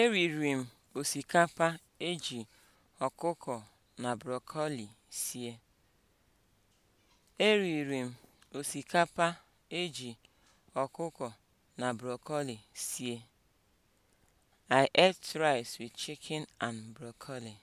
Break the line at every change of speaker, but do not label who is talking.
Eriri m osikapa eji ọkụkọ na brokoli sie. m osikapa eji ọkụkọ na brokoli sie. I ate rice with chicken and broccoli.